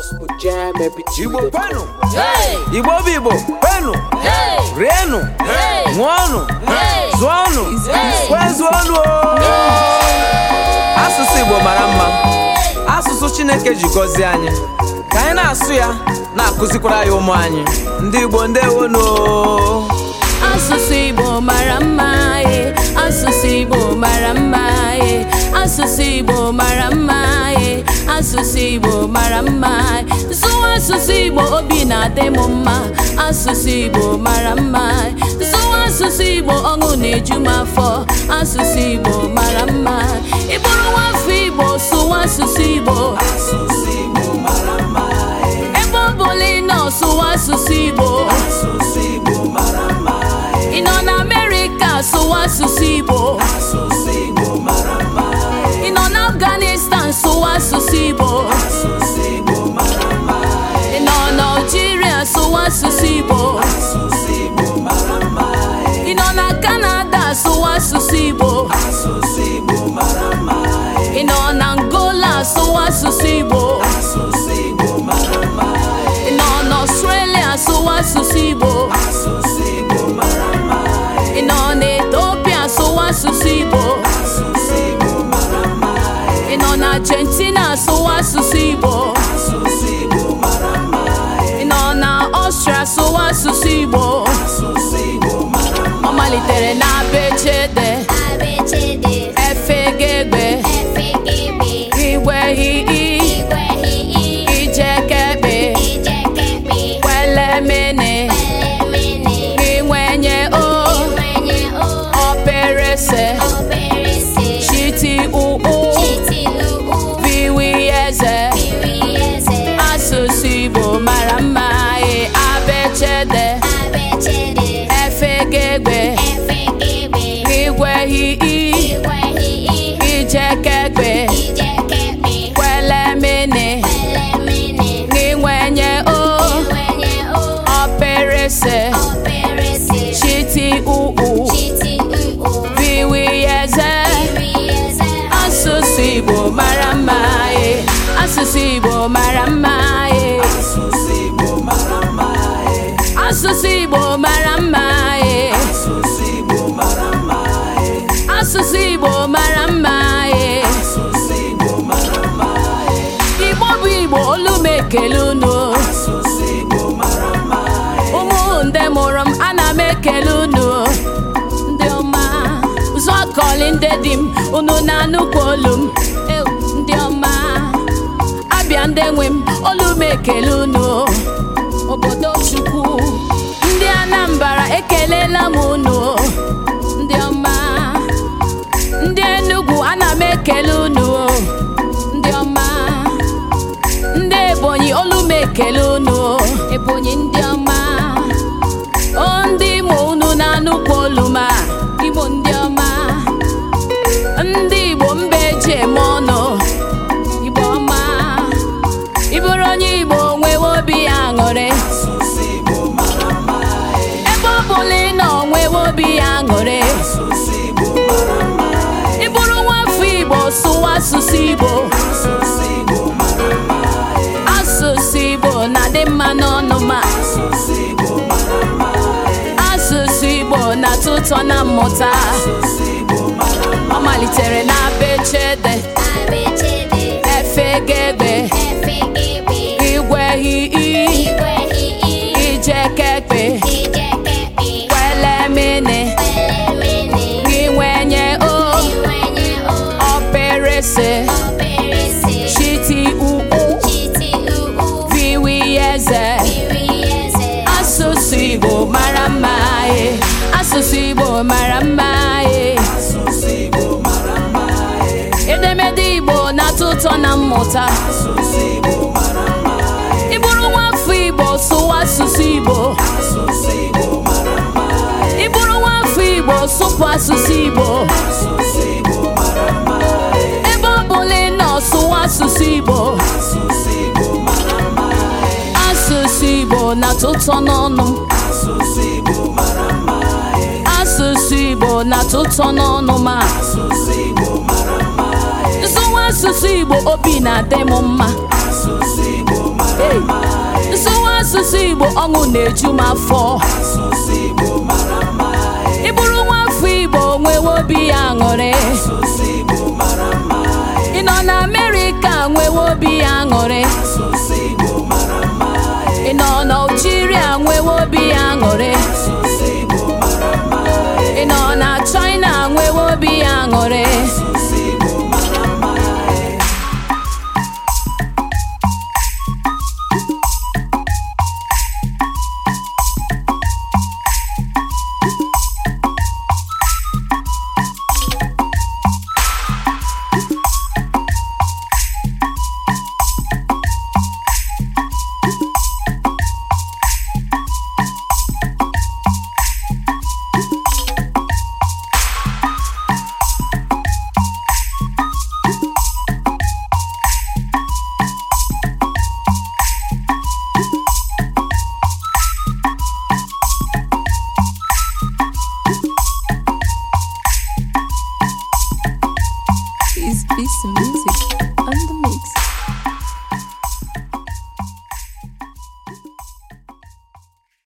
gospel jam Igbo kwenu Igbo bụ Igbo kwenu rienu ṅụọnụ zụọnụ kwezuọnụ asụsụ Igbo mara mma asụsụ Chineke ji gọzie anyị ka anyị na-asụ ya na-akụzikwara ya ụmụ anyị ndị Igbo ndewonu asụsụ Igbo mara mma eh. asụsụ Igbo mara mma eh. asụsụ Igbo mara asụsụ igbo mara mma zụwa asụsụ igbo obi na-adị m mma asụsụ igbo mara mma zụwa asụsụ igbo ọṅụ na-eju m afọ asụsụ igbo mara mma Ịbụrụ bụrụ nwa afọ igbo sụwa asụsụ igbo eh. ebe ọ bụla ị nọ sụwa asụsụ igbo eh. ị nọ na amerịka sụwa asụsụ igbo Ị nọ na Australia asụgo asụsụ Igbo? asụsụ Igbo mara mma. Ị nọ na Australia asụgo asụsụ Igbo? asụsụ Igbo mara mma. Ị nọ na Ethiopia asụgo asụsụ Igbo? asụsụ Igbo mara mma. Ị nọ na Argentina asụgo asụsụ Igbo? asụsụ Igbo mara mma. Ị nọ na Austria asụso asụsụ Igbo? asụsụ Igbo mara mma. eze asụsụ Igbo mara mma e abechede efegegbe igwehi ijekegbe asụsụ Igbo mara mma e asụsụ Igbo mara mma e asụsụ Igbo mara mma e Igbo bụ Igbo olu m ekele unu ụmụ ndị mụrụ m ana m ekele unu ndị ọma ụzọ kọli ndị dị m unu na-anụkwa olu m ndị nwe m olu ekele unu obodo chukwu ndị Anambra ekelela m unu ndị ọma ndị Enugu ana m ekele unu ndị ọma ndị Ebonyi olu ekele unu Ebonyi ndị ọma asụsụ Igbo asụsụ Igbo na-adị mma n'ọnụ ma asụsụ Igbo na-atọ ụtọ na mmụta ọ malitere na be asụsụ Igbo mara eh. mma eh. edemede Igbo na-atọ na mmụta ị eh. nwa afọ Igbo sụwa asụsụ Igbo ị bụrụ nwa afọ Igbo sụpụ asụsụ Igbo ebe ọ bụla ị nọ sụwa asụsụ Igbo asụsụ Igbo na-atọ n'ọnụ na-atụ ụtọ n'ọnụ ma asụsụ Igbo obi na-adị m mma nsụwa asụsụ Igbo ọṅụ na-eju m afọ ịbụrụ nwa afọ Igbo nwewe obi ya aṅụrị ị nọ na Amerịka nwewe obi ya aṅụrị ị nọ na a nwewe obi ya aṅụrị Soon.